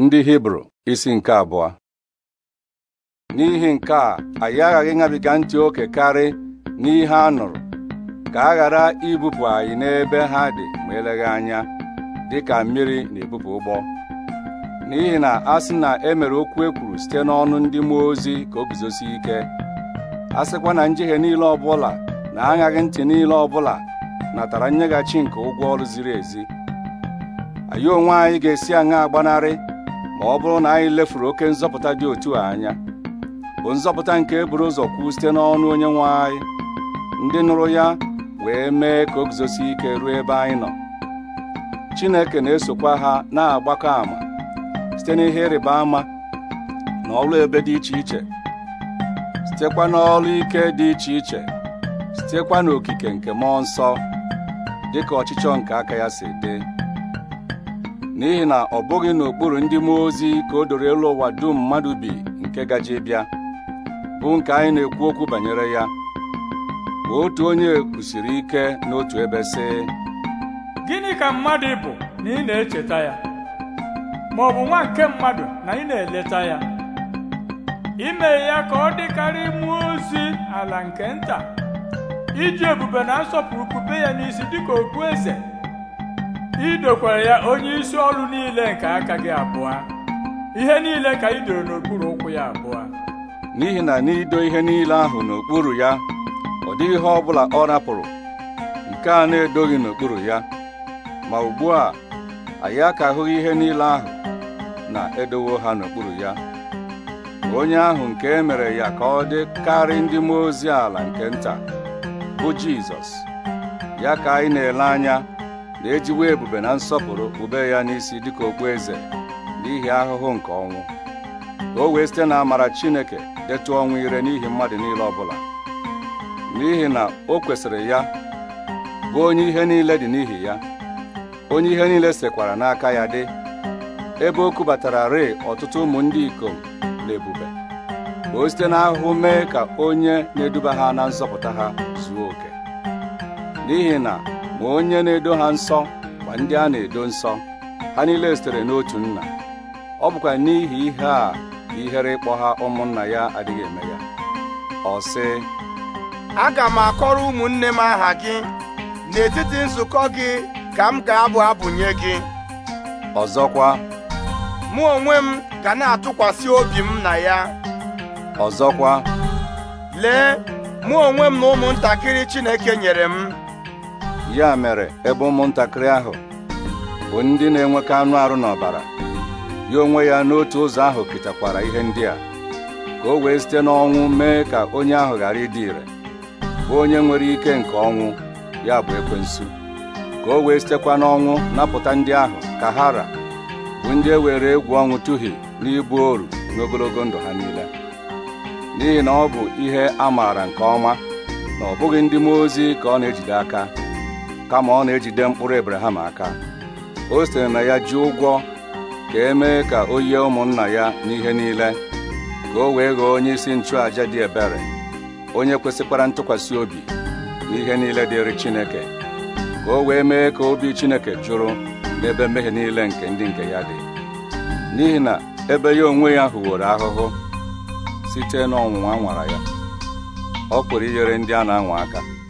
ndị hibru isi nke abụọ n'ihi nke a anyị aghaghị ịṅabiga ntị oke karị n'ihe a nụrụ ka a ghara ibupụ anyị n'ebe ha dị ma eleghị anya dị ka mmiri na-ebupụ ụgbọ n'ihi na a sị na e mere okwu e kwuru site n'ọnụ ndị mmụọ ozi ka o guzosi ike a sịkwa na njehie niile ọbụla na aṅaghị ntị niile ọbụla natara nyeghachi nke ụgwọ ọrụ ziri ezi anyị onwe anyị ga-esi aṅa agbanarị ọ bụrụ na anyị lefuru oke nzọpụta dị otu a anya bụ nzọpụta nke e buru ụzọ kwuo site n'ọnụ onye nwe anyị ndị nụrụ ya wee mee ka o guzosi ike ruo ebe anyị nọ Chineke na-esokwa ha na-agbakọ ama site n'ihe ịrịba ama na ọrụ ebe dị iche iche sitekwa n'ọrụ ike dị iche iche sitekwa n'okike nke mmụọ nsọ dịka ọchịchọ nke aka ya si dị n'ihi na ọ bụghị n'okpuru ndị mmụọ ozi ka o doro elu ụwa dum mmadụ bi nke gaji bịa bụ nke anyị na-ekwu okwu banyere ya otu onye kwusiri ike n'otu ebe si. gịnị ka mmadụ bụ na ị na-echeta ya ma ọ bụ nwa nke mmadụ na ị na-eleta ya ime ya ka ọ dịkarị mmụọ ozi ala nke nta iji ebube na nsọpụrụ kube ya n'isi dịka eze. ị dokwara ya onye isi ọrụ niile nke aka gị abụọ ihe niile ka ị n'okpuru ụkwụ ya abụọ n'ihi na n'ido ihe niile ahụ n'okpuru ya ọ dị ihe ọ bụla ọ rapụrụ nke a na-edoghị n'okpuru ya ma ugbu a anyị akahụghị ihe niile ahụ na-edowo ha n'okpuru ya onye ahụ nke e mere ya ka ọ dị karị ndị mmụọ ozi ala nke nta bụ Jizọs ya ka anyị na-ele anya na-ejiwe ebube na nsọpụrụ kpube ya n'isi dịka okpueze n'ihi ahụhụ nke ọnwụ ka o wee site na amara Chineke detụ ọnwụ ire n'ihi mmadụ niile ọbụla n'ihi na o kwesịrị ya bụ onye ihe niile dị n'ihi ya onye ihe niile sekwara n'aka ya dị ebe o kubatara rịị ọtụtụ ụmụ ndị ikom na ebube ka o site n'ahụhụ mee ka onye na-eduba ha na nzọpụta ha zuo oke n'ihi na ma onye na-edo ha nsọ kwa ndị a na-edo nsọ ha niile sitere n'otu nna ọ bụkwa n'ihi ihe a ihere ịkpọ ha ụmụnna ya adịghị eme ya ọ sị aga m akọrọ ụmụnne m aha gị n'etiti nzukọ gị ka m ga-abụ abụnye gị ọzọkwa mụ onwe m ga na-atụkwasị obi m na ya ọzọkwa lee mụ onwe m na ụmụntakịrị Chineke nyere m ya mere ebe ụmụntakịrị ahụ bụ ndị na-enwekọ anụ arụ n'ọbara ya onwe ya n'otu ụzọ ahụ kịtakwara ihe ndị a ka o wee site n'ọnwụ mee ka onye ahụ ghara ịdị ire bụ onye nwere ike nke ọnwụ ya bụ ekwensu ka o wee sitekwa n'ọnwụ napụta ndị ahụ ka hara bụ ndị e were egwu ọnwụ na n'ibu oru n'ogologo ndụ ha niile n'ihi na ọ bụ ihe a maara nke ọma na ọ bụghị ndị mmụọ ozi ka ọ na-ejide aka kama ọ na-ejide mkpụrụ Abraham aka o sitere na ya ji ụgwọ ka e mee ka o yie ụmụnna ya n'ihe niile ka o wee ghọọ onye isi nchụàja dị ebere onye kwesịkwara ntụkwasị obi n'ihe niile dịrị Chineke ka o wee mee ka obi Chineke jụrụ n'ebe mmehie niile nke ndị nke ya dị n'ihi na ebe ya onwe ya hụworo ahụhụ site n'ọnwụnwa nwara ya ọ pụrụ inyere ndị a na-anwa aka